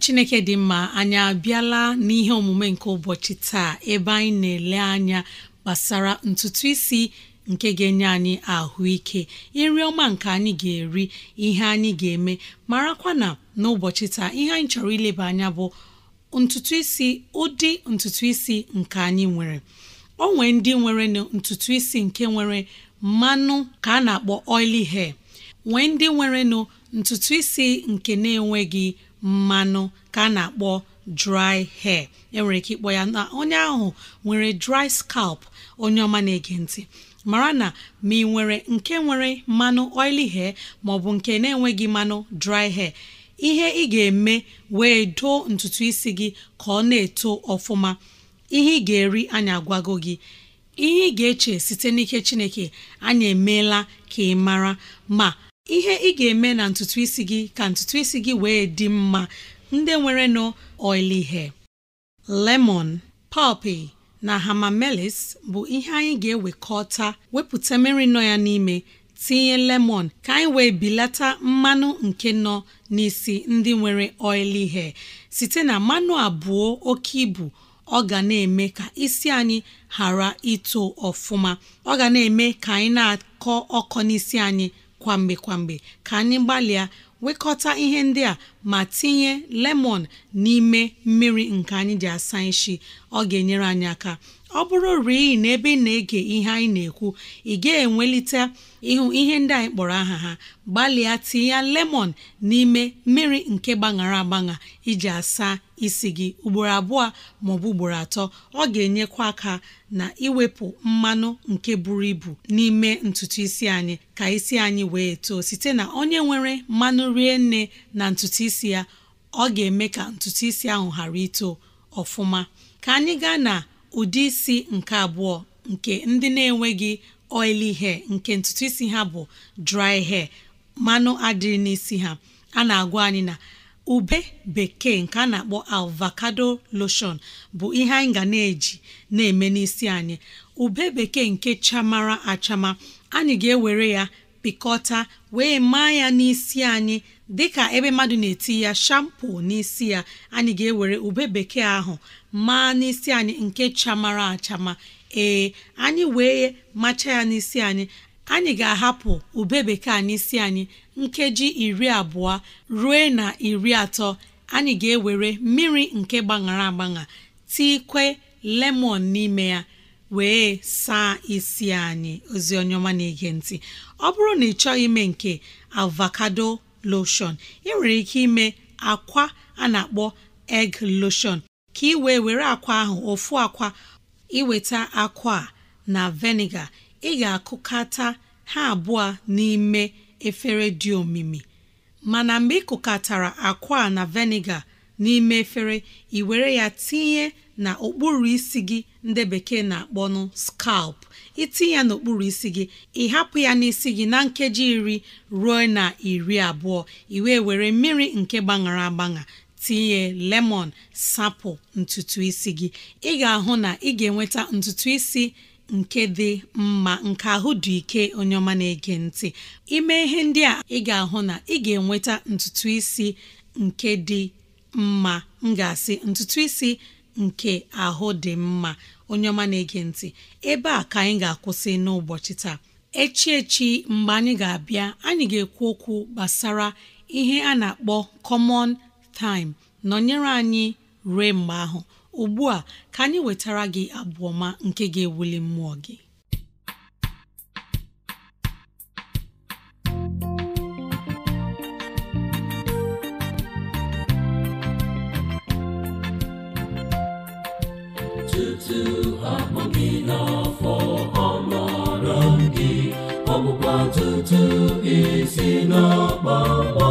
chineke dị mma anyị abịala n'ihe omume nke ụbọchị taa ebe anyị na-ele anya gbasara ntutu isi nke ga-enye anyị ahụike nri ọma nke anyị ga-eri ihe anyị ga-eme marakwa na n'ụbọchị taa ihe anyị chọrọ ileba anya bụ ntutu isi ụdị ntutu isi nke anyị nwere o nwee ndị nwere ntutu isi nke nwere mmanụ ka a na-akpọ oily hair nwee ndị nwere ntutu isi nke na-enweghị mmanụ ka a na-akpọ dry hair enwere ike ịkpọ ya na onye ahụ nwere dry scalp onye ọma na-ege ntị mara na ma ị nwere nke nwere mmanụ oily hair maọbụ nke na-enweghị mmanụ dry hair ihe ị ga-eme wee doo ntutu isi gị ka ọ na-eto ọfụma ihe ị ga-eri anya agwago gị ihe ị ga-eche site n'ike Chineke anyị emeela ka ị mara ma ihe ị ga-eme na ntutu isi gị ka ntutu isi gị wee dị mma ndị nwere nụ oily ihe lemon pọpị na hamamelis bụ ihe anyị ga-ewekọta wepụta mmiri nọ ya n'ime tinye lemon ka anyị wee bilata mmanụ nke nọ n'isi ndị nwere oily ihe site na mmanụ abụọ oke ibu ọ ga na-eme ka isi anyị ghara ito ọfụma ọ ga na-eme ka anyị na-akọ ọkọ n'isi anyị kwamgbe kwamgbe ka anyị gbalịa wekọta ihe ndị a ma tinye lemon n'ime mmiri nke anyị ji asa isi ọ ga-enyere anyị aka ọ bụrụ rii na ebe ị na-ege ihe anyị na-ekwu ị ga-enwelite ịhụ ihe ndị anyị kpọrọ aha ha gbalịa tinye ya lemon n'ime mmiri nke gbaṅara agbaṅa iji asa isi gị ugboro abụọ maọbụ ugboro atọ ọ ga-enyekwa aka na iwepụ mmanụ nke buru ibu n'ime ntutu isi anyị ka isi anyị wee too site na onye nwere mmanụ rie nne na ntutu isi ya ọ ga-eme ka ntutu isi ahụ ghara ito ọfụma ka anyị gaa na ụdị isi nke abụọ nke ndị na-enweghị oili hair nke ntutu isi ha bụ dry hair mmanụ adịrị n'isi ha a na-agwa anyị na ube bekee nke a na-akpọ avocado lotion bụ ihe anyị ga na-eji na-eme n'isi anyị ube bekee nke chamara achama anyị ga-ewere ya pịkọta wee maa ya n'isi anyị dịka ebe mmadụ na-eti ya shampo n'isi ya anyị ga-ewere ube bekee ahụ maa n'isi anyị nke chamara achama ee anyị wee macha ya n'isi anyị anyị ga-ahapụ ube bekee n'isi anyị nkeji iri abụọ ruo na iri atọ anyị ga-ewere mmiri nke gbaṅara agbaṅa kwe lemon n'ime ya wee saa isi anyị ozi onye ọma na-ege ntị ọ bụrụ na ị chọghị ime nke avakado loshon ị nwere ike ime akwa a na-akpọ egg lotion ka i wee were akwa ahụ ofu akwa iweta akwa a na veniga ị ga-akụkata ha abụọ n'ime efere dị omimi mana mgbe ị kụkatara akwa a na veniga n'ime efere ị were ya tinye na okpuru isi gị ndị bekee na-akpọ nụ scalp itinye ya n'okpuru isi gị ịhapụ hapụ ya n'isi gị na nkeji iri ruo na iri abụọ i wee were mmiri nke gbaṅara agbaṅa tinye lemon sapụ ntutu isi gị ị ga-ahụ na ị ga-enweta ntutu isi nke dị mma nke ahụ dị ike onye ọma na-ege ntị ime ihe ndị a ị ga-ahụ na ị ga-enweta ntutu isi nke dị mma m ga-asị ntutu isi nke ahụ dị mma onye ọma na-ege ntị ebe a ka anyị ga-akwụsị n'ụbọchị taa echi echi mgbe anyị ga-abịa anyị ga-ekwu okwu gbasara ihe a na-akpọ common time nọnyere anyị rue mgbe ahụ ugbu a ka anyị wetara gị abụ ọma nke ga-ewuli mmụọ gị Jesu akpọ gị n'afọ amara gị ọgbụgba tutu isi n'ọkpọkpọ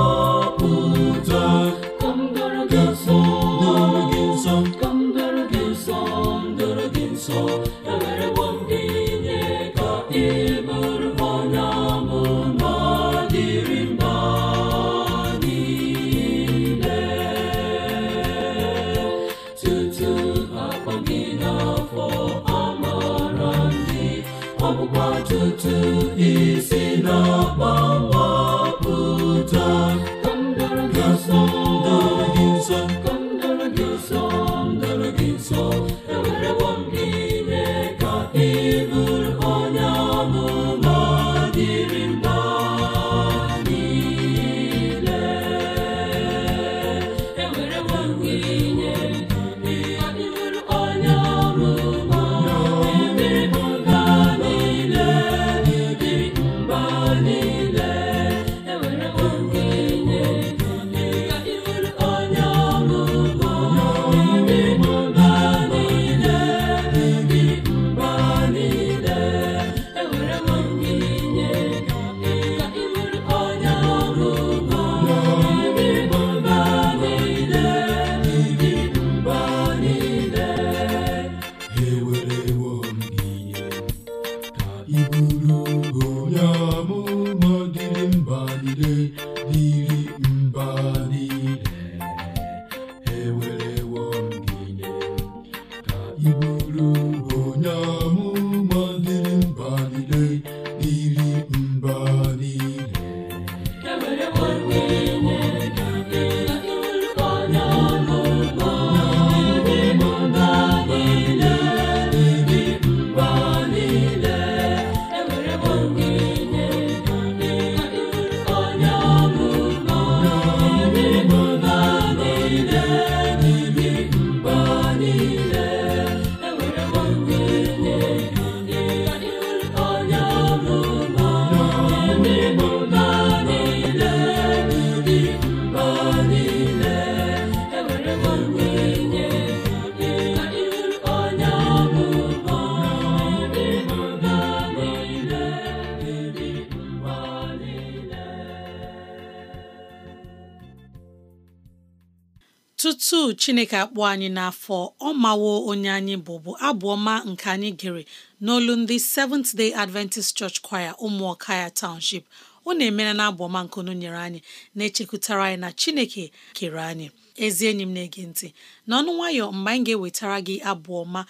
tutu chineke akpọ anyị n'afọ ọ mawo onye anyị bụbu abụọma abụ ọma nke anyị gere n'olu ndị Seventh Day Adventist Church Choir ụmụọka ya Township ọ na-emere na abụọma nke onu nyere anyị na-echekwutara anyị na chineke kere anyị ezi enyi m na-ege ntị n'ọnụ nwayọ mgbe anyị ga-ewetara gị abụ ọma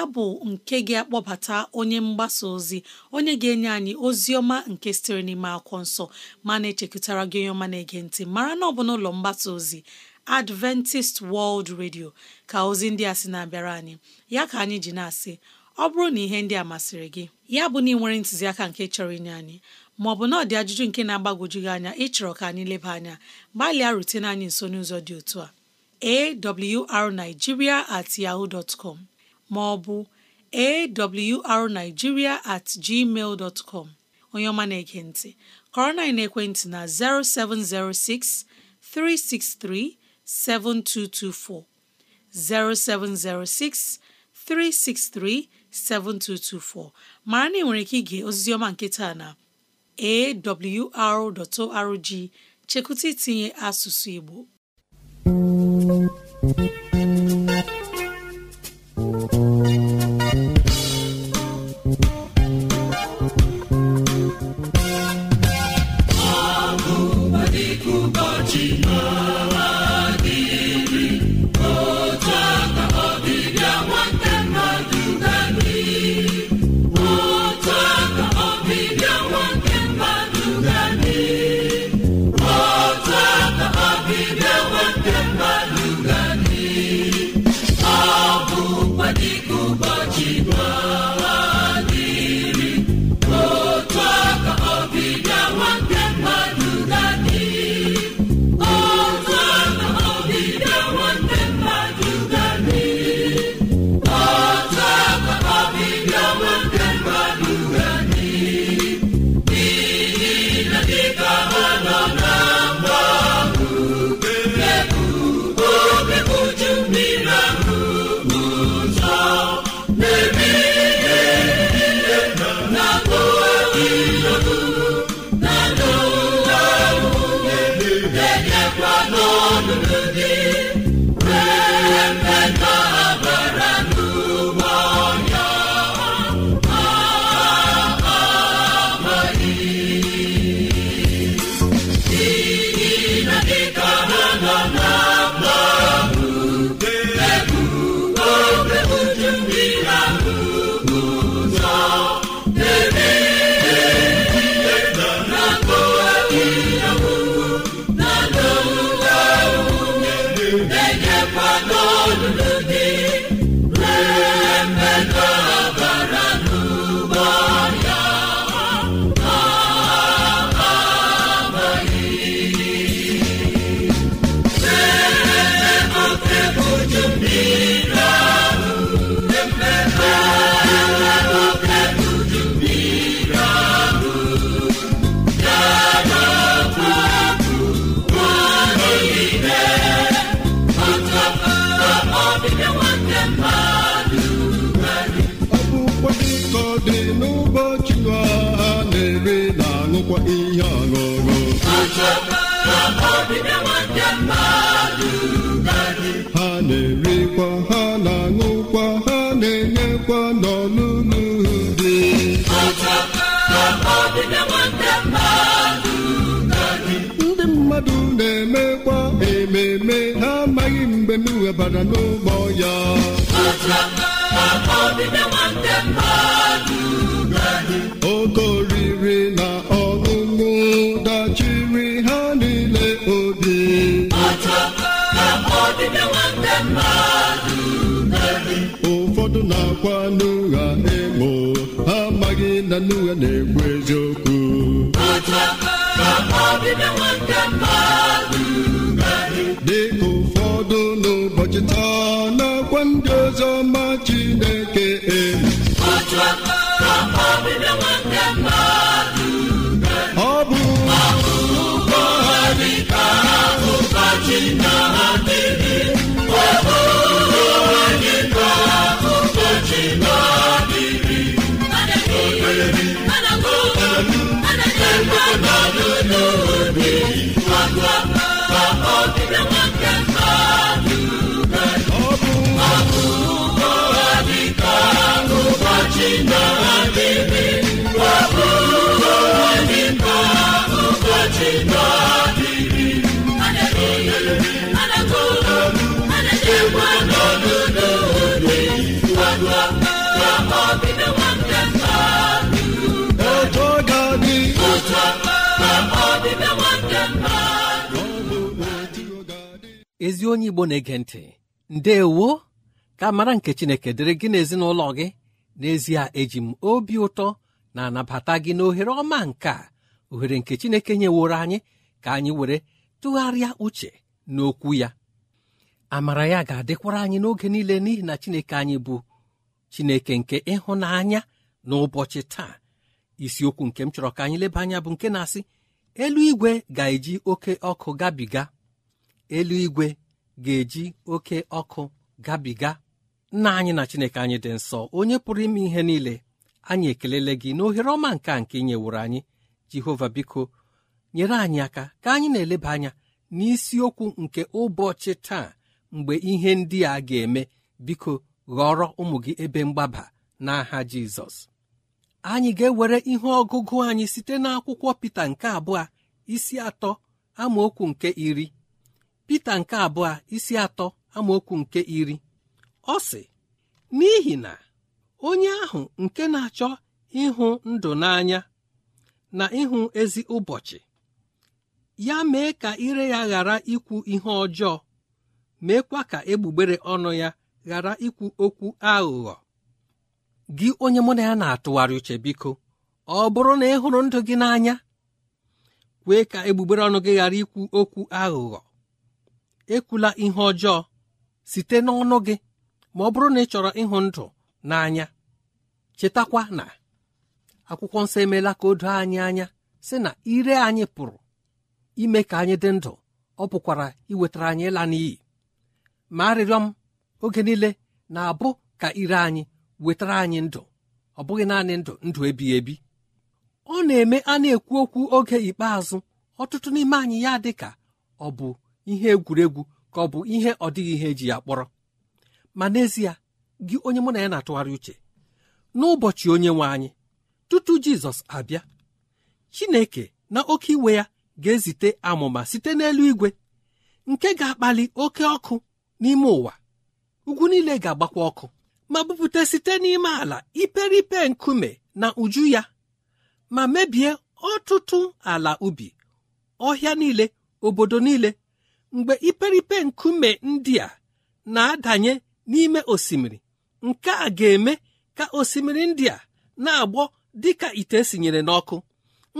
abụ nke ga-akpọbata onye mgbasa ozi onye ga-enye anyị ozi ọma nke sitere n'ime akwụkwọ nsọ ma na-echekwutara gị onye ọma na-ege ntị mara na ọ bụ n'ụlọ mgbasa ozi Adventist World Radio ka ozi ndị a sị na-abịara anyị ya ka anyị ji na-asị ọ bụrụ na ihe ndị a masịrị gị ya bụ na ị nwere ntụziaka nke chọrọ inye anyị maọbụ na ọ dị ajụjụ nke na-agbagwoju gị anya ịchọrọ ka anyị leba anya gbalịa rutene anyị nso n'ụzọ dị otu a awrnigeria at yahoo dot com maọbụ awrnigeria at gmail dot com onye ọma na-ege ntị kọrọ na ekwentị na 0706363 7224 0706 363 7224 mara na ị nwere ike ige ozizi ọma nke taa na awr.org chekwụta itinye asụsụ Igbo ọ bụkwa dịka dị n'ụbọchị ha na-eri na aṅụkwa ihe ọṅụṅụ ha na-erikwa ha na-aṅụkwa ha na-enyekwa n'ọlụlụ dị mmadụ na-emekwa ememe ha amaghị mgbe m webara n'ụgbọ ya oge oriri na ọṅụṅụ dachiri ha niile obi ụfọdụ na-akwa n'ụgha emo ha amaghị na n'ụgha na-ekwu eziokwu akwa ndị ọzọ ma Chineke e ezi onye igbo na-ege ntị ndeewo ka mara nke chineke dịrị gị n'ezinụlọ gị n'ezie eji m obi ụtọ na anabata gị n'ohere ọma nke a ohere nke chineke nyeworo anyị ka anyị were tụgharịa uche n'okwu ya amara ya ga-adịkwara anyị n'oge niile n'ihi na chineke anyị bụ chineke nke ịhụnanya n'ụbọchị taa isiokwu nke m chọrọ ka anyị leba anya bụ nke na-asị eluigwe ga-eji oke ọkụ gabiga eluigwe ga-eji oke ọkụ gabiga nna anyị na chineke anyị dị nsọ onye pụrụ ime ihe niile anyị ekelele gị n'ohere ọma nke nke nyeworo anyị jehova biko nyere anyị aka ka anyị na-eleba anya n'isiokwu nke ụbọchị taa mgbe ihe ndị a ga-eme biko ghọrọ ụmụ gị ebe mgbaba n'aha jizọs anyị ga-ewere ihe ọgụgụ anyị site n'akwụkwọ Pita nke abụọ isi atọ amaokwu nke iri Pita nke abụọ isi atọ amaokwu nke iri ọ sị n'ihi na onye ahụ nke na-achọ ịhụ ndụ n'anya na ịhụ ezi ụbọchị ya mee ka ire ya ghara ikwu ihe ọjọọ meekwa ka egbugbere ọnụ ya ghara ikwu okwu aghụghọ gị onye mụ na ya na-atụgharị uche biko ọ bụrụ na ị hụrụ ndụ gị n'anya kwee ka egbugbere ọnụ gị ghara ikwu okwu aghụghọ ekwula ihe ọjọọ site n'ọnụ gị ma ọ bụrụ na ị chọrọ ịhụ ndụ n'anya chetakwa na akwụkwọ nsọ emeela ka o doo anyị anya sị na ire anyị pụrụ ime ka anyị dị ndụ ọ pụkwara iwetara anyị ịla n'iyi ma arịrịọ m oge niile na-abụ ka ire anyị wetara anyị ndụ ọ bụghị naanị ndụ ndụ ebighị ebi ọ na-eme a na-ekwu okwu oge ikpeazụ ọtụtụ n'ime anyị ya dị ka ọ bụ ihe egwuregwu ka ọ bụ ihe ọ dịghị ihe eji ya kpọrọ ma n'ezie gị onye mụ na ya na-atụgharị uche n'ụbọchị onye nwe anyị tutu Jizọs abịa Chineke na oke iwe ya ga-ezite amụma site n'elu igwe nke ga-akpali oke ọkụ n'ime ụwa ugwu niile ga-agbakwa ọkụ ma bupụta site n'ime ala iperipe nkume na uju ya ma mebie ọtụtụ ala ubi ọhịa niile obodo niile mgbe iperipe nkume ndị a na-adanye n'ime osimiri nke a ga-eme ka osimiri ndị a na-agbọ dịka ite sinyere n'ọkụ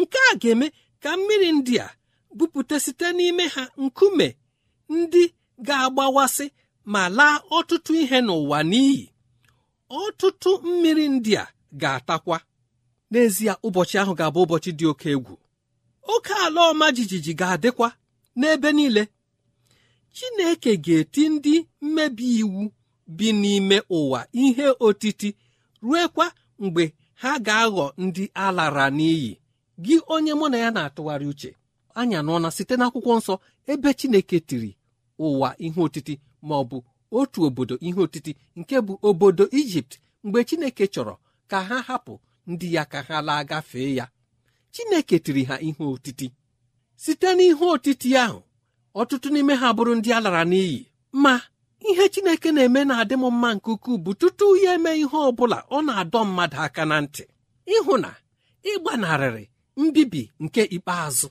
nke a ga-eme ka mmiri ndị a bupụta site n'ime ha nkume ndị ga-agbawasị ma laa ọtụtụ ihe n'ụwa n'iyi ọtụtụ mmiri ndị a ga-atakwa n'ezie ụbọchị ahụ ga-abụ ụbọchị dị oke egwu oke ala ọma jijiji ga-adịkwa n'ebe niile Chineke ga-eti ndị mmebi iwu bi n'ime ụwa ihe otiti ruekwa mgbe ha ga-aghọ ndị alara n'iyi gị onye mụ na ya na-atụgharị uche anya site n'akwụkwọ nsọ ebe Chineke tiri ụwa ihe otiti ma ọ bụ otu obodo ihe otiti nke bụ obodo ijipt mgbe chineke chọrọ ka ha hapụ ndị ya ka ha laa gafee ya chineke tiri ha ihe otiti site n'ihe otiti ahụ ọtụtụ n'ime ha bụrụ ndị a lara n'iyi ma ihe chineke na-eme na-adị m mma nke ukwuu bụ tutu ya eme ihe ọ bụla ọ na-adọ mmadụ aka na ntị ịhụ na ịgbanarịrị mbibi nke ikpeazụ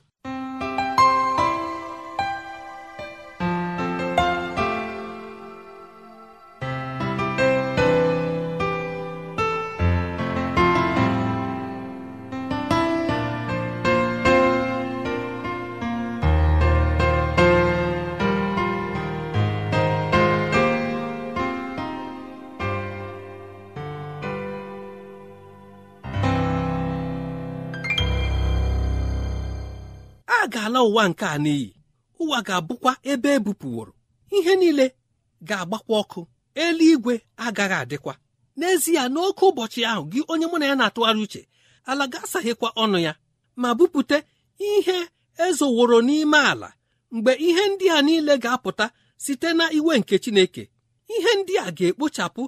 ala ụwa nke a n'iyi ụwa ga-abụkwa ebe ebupụworo ihe niile ga-agbakwa ọkụ eluigwe agaghị adịkwa n'ezie n'oke ụbọchị ahụ gị onye mụ na ya na-atụgharị uche ala ga-asaghịkwa ọnụ ya ma bupụta ihe ezoworo n'ime ala mgbe ihe ndị a niile ga-apụta site na iwe nke Chineke ihe ndị a ga-ekpochapụ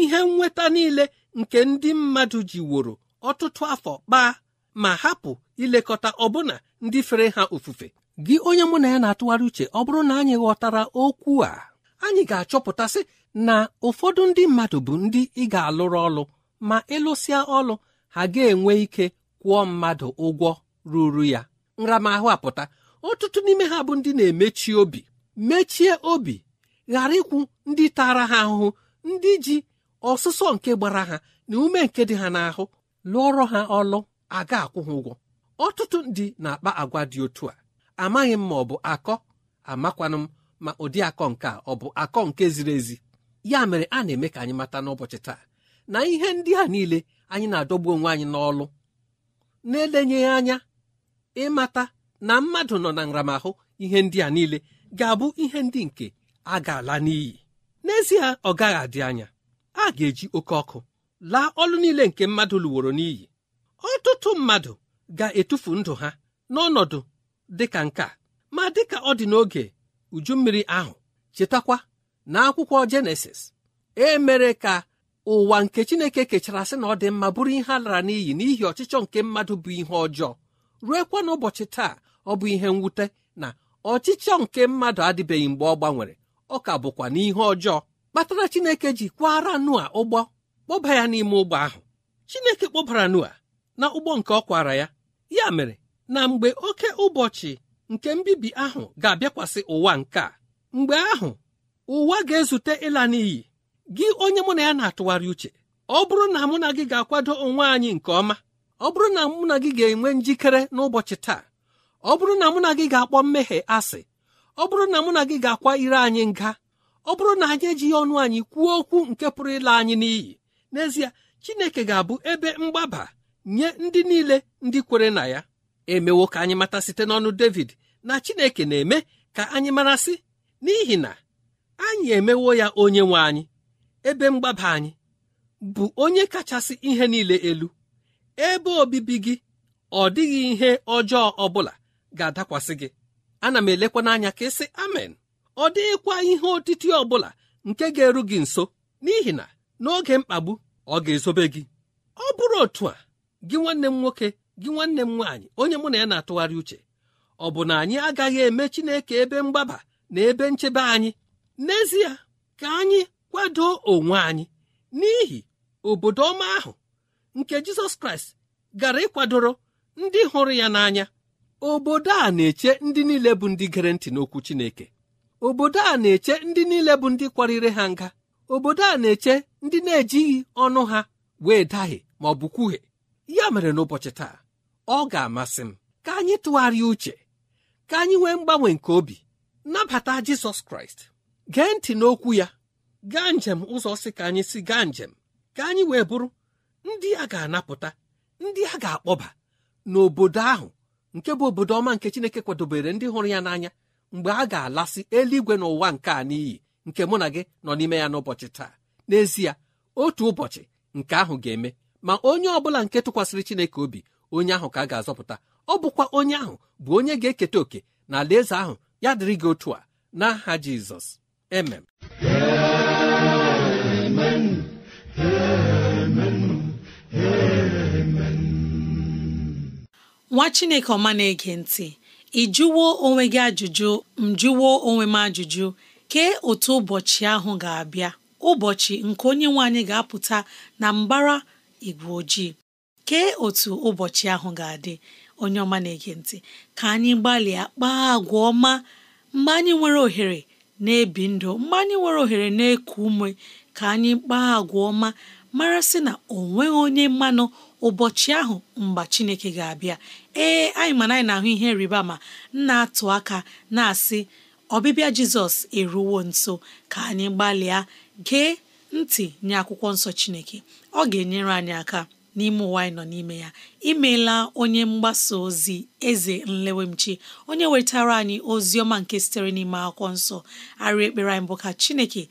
ihe nnweta niile nke ndị mmadụ woro ọtụtụ afọ kpaa ma hapụ ilekọta ọbụna ndị fere ha ofufe gị onye mụ na ya na-atụgharị uche ọ bụrụ na anyị ghọtara okwu a anyị ga-achọpụtasị na ụfọdụ ndị mmadụ bụ ndị ị ga-alụrụ ọlụ ma ịlụsịa ọlụ ha ga-enwe ike kwụọ mmadụ ụgwọ ruru ya nramahụ apụta ọtụtụ n'ime ha bụ ndị na-emechi obi mechie obi ghara ịkwụ ndị tara ha ahụhụ ndị ji ọsụsọ nke gbara ha na ume nke dị ha n'ahụ lụọrọ ha ọlụ a ga-akwụ ha ụgwọ ọtụtụ ndị na-akpa agwa dị otu a amaghị m ma ọ bụ akọ amakwanụ m ma ụdị akọ nke a ọ bụ akọ nke ziri ezi ya mere a na-eme ka anyị mata n'ụbọchị taa na ihe ndị a niile anyị na-adọgbu onwe anyị n'ọlụ na-elenyeghị anya ịmata na mmadụ nọ na nramahụ ihe ndị a niile ga-abụ ihe ndị nke a ga-ala n'iyi n'ezie ọ gaghị adị anya a ga-eji oke ọkụ laa ọlụ niile nke mmadụ lụworo n'iyi ọtụtụ mmadụ ga-etufu ndụ ha n'ọnọdụ dịka nke a ma dịka ọ dị n'oge uju mmiri ahụ chetakwa na akwụkwọ Jenesis e mere ka ụwa nke Chineke kechara sị na ọ dị mma bụrụ ihe a lara n'iyi n'ihi ọchịchọ nke mmadụ bụ ihe ọjọọ ruekwa n'ụbọchị taa ọ bụ ihe mwute na ọchịchọ nke mmadụ adịbeghị mgbe ọ gbanwere ọ ka bụkwa n'ihe ọjọọ kpatara Chineke ji kwara Noa ụgbọ kpọba ya n'ime ụgbọ ahụ Chineke kpọbara Noa na ụgbọ nke ọ kwara ya ya mere na mgbe oke ụbọchị nke mbibi ahụ ga-abịakwasị ụwa nke a mgbe ahụ ụwa ga-ezute ịla n'iyi gị onye mụ na ya na-atụgharị uche ọ bụrụ na mụ na gị ga-akwado onwe anyị nke ọma ọ bụrụ na mụ na gị ga-enwe njikere n'ụbọchị taa ọ bụrụ na mụ na gị ga-akpọ mmehie asị ọ bụrụ na mụ na gị ga-akwa ire anyị nga ọ bụrụ na anyị ejighị ọnụ anyị kwuo okwu nke pụrụ ịla anyị n'iyi n'ezie Chineke ga-abụ ebe mgbaba nye ndị niile ndị kwere na ya emewo ka anyị mata site n'ọnụ David na Chineke na-eme ka anyị marasị n'ihi na anyị emewo ya onye nwe anyị ebe mgbaba anyị bụ onye kachasị ihe niile elu ebe obibi gị ọ dịghị ihe ọjọọ ọbụla ga-adakwasị gị ana m elekwa n'anya ka ịsị amen ọ dịghịkwa ihe otiti ọ nke ga-eru gị nso n'ihi na n'oge mkpagbu ọ ga-ezobe gị ọ bụrụ otu a gị nwanne m nwoke gị nwanne m nwaanyị onye mụ na ya na-atụgharị uche ọ bụ na anyị agaghị eme Chineke ebe mgbaba na ebe nchebe anyị n'ezie ka anyị kwado onwe anyị n'ihi obodo ọma ahụ nke Jizọs Kraịst gara ịkwadoro ndị hụrụ ya n'anya obodo a na-eche ndị niile bụ ndị gere ntị n'okwu Chineke obodo a na-eche ndị niile bụ ndị kwarịrị ha nga obodo a na-eche ndị na-ejighị ọnụ ha wee dahie ma ọ bụ kwuhie ya mere n'ụbọchị taa ọ ga-amasị m ka anyị tụgharịa uche ka anyị nwee mgbanwe nke obi nabata Jizọs Kraịst gee ntị n'okwu ya gaa njem ụzọ si ka anyị si gaa njem ka anyị wee bụrụ ndị a ga-anapụta ndị a ga-akpọba n'obodo ahụ nke bụ obodo ọma nke Chineke kwadobere ndị hụrụ ya n'anya mgbe a ga-alasị eluigwe n'ụwa nke a n'iyi nke mụ na gị nọ n'ime ya n'ụbọchị taa n'ezie otu ụbọchị nke ahụ ga-eme ma onye ọbụla nke tụkwasịrị chineke obi onye ahụ ka a ga-azọpụta ọ bụkwa onye ahụ bụ onye ga-eketa oke na alaeze ahụ ya dịrị gị otu a n'aha jizọs emem nwa chineke ọma na-ege ntị ị jụwo onwe gị ajụjụ m jụwo onwe m ajụjụ kee otu ụbọchị ahụ ga-abịa ụbọchị nke onye nwe anyị ga-apụta na mbara igwe ojii kee otu ụbọchị ahụ ga-adị onye ọma na-ege ntị ka anyị gbalịa kpaa agwa ọma mgbe anyị nwere ohere na-ebi ndụ mgbe anyị nwere ohere na-eku ume ka anyị kpaa agwa ọma mara sị na o nweghị onye mmanụ ụbọchị ahụ mgbe Chineke ga-abịa ee anyị mana anyị na-ahụ ihe rịba ma na-atụ aka na-asị ọbịbịa Jizọs eruwo nso ka anyị gbalịa gee ntị nye akwụkwọ nsọ Chineke ọ ga-enyere anyị aka n'ime ụwa anyị nọ n'ime ya imeela onye mgbasa ozi eze nlewemchi onye wetara anyị ozi ọma nke sitere n'ime akwụkwọ nsọ arị ekpere anyị bụ ka chineke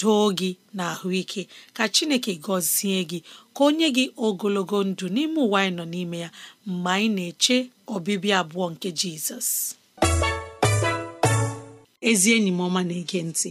doo gị na ahụike ka chineke gọzie gị ka onye gị ogologo ndụ n'ime ụwa anyị nọ n'ime ya mgbe anyị na-eche ọbịbịa abụọ nke jizọs ezi enyi m ọma na-ege ntị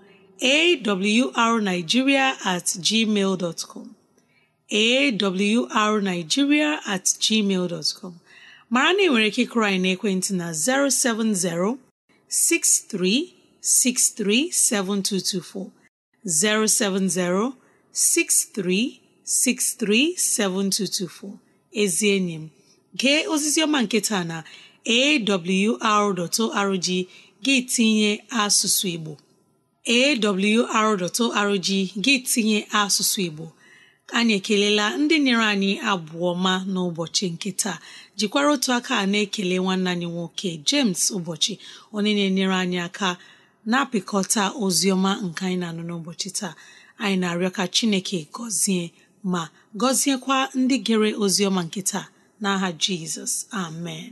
awrnigeria at gmail dot com awrnigeria at gmail dot com mara na ị nwere ike ịkụrụ anyị n'ekwentị na 070 63637224 070 63637224 ezi enyi m gee ozizi ọma nke na awr.org gị tinye asụsụ Igbo awr.org gị tinye asụsụ Igbo anyị ekelela ndị nyere anyị abụọ ma n'ụbọchị nke taa jikwara otu aka na-ekele nwanne anyị nwoke James ụbọchị onye na-enyere anyị aka na-apịkọta ozi ọma nke anyị na-anụ n'ụbọchị taa anyị na-arịọ ka Chineke gọzie ma gọziekwa ndị gere ozi ọma nke taa n'aha Jizọs amen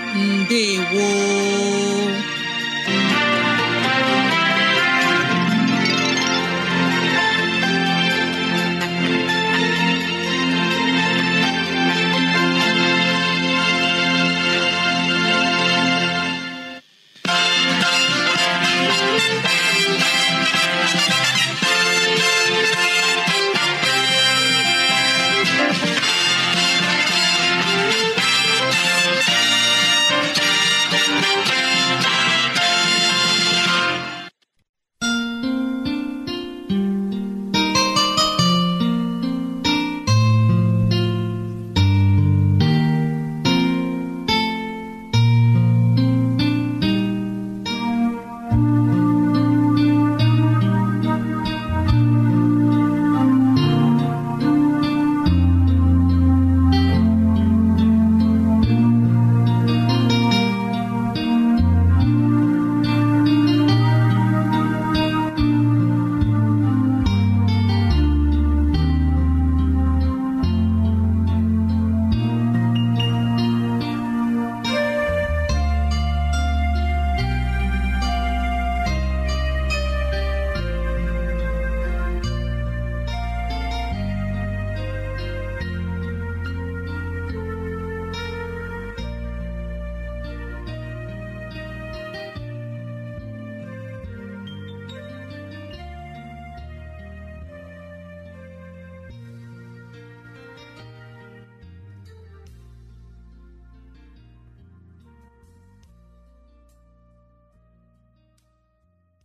ndewo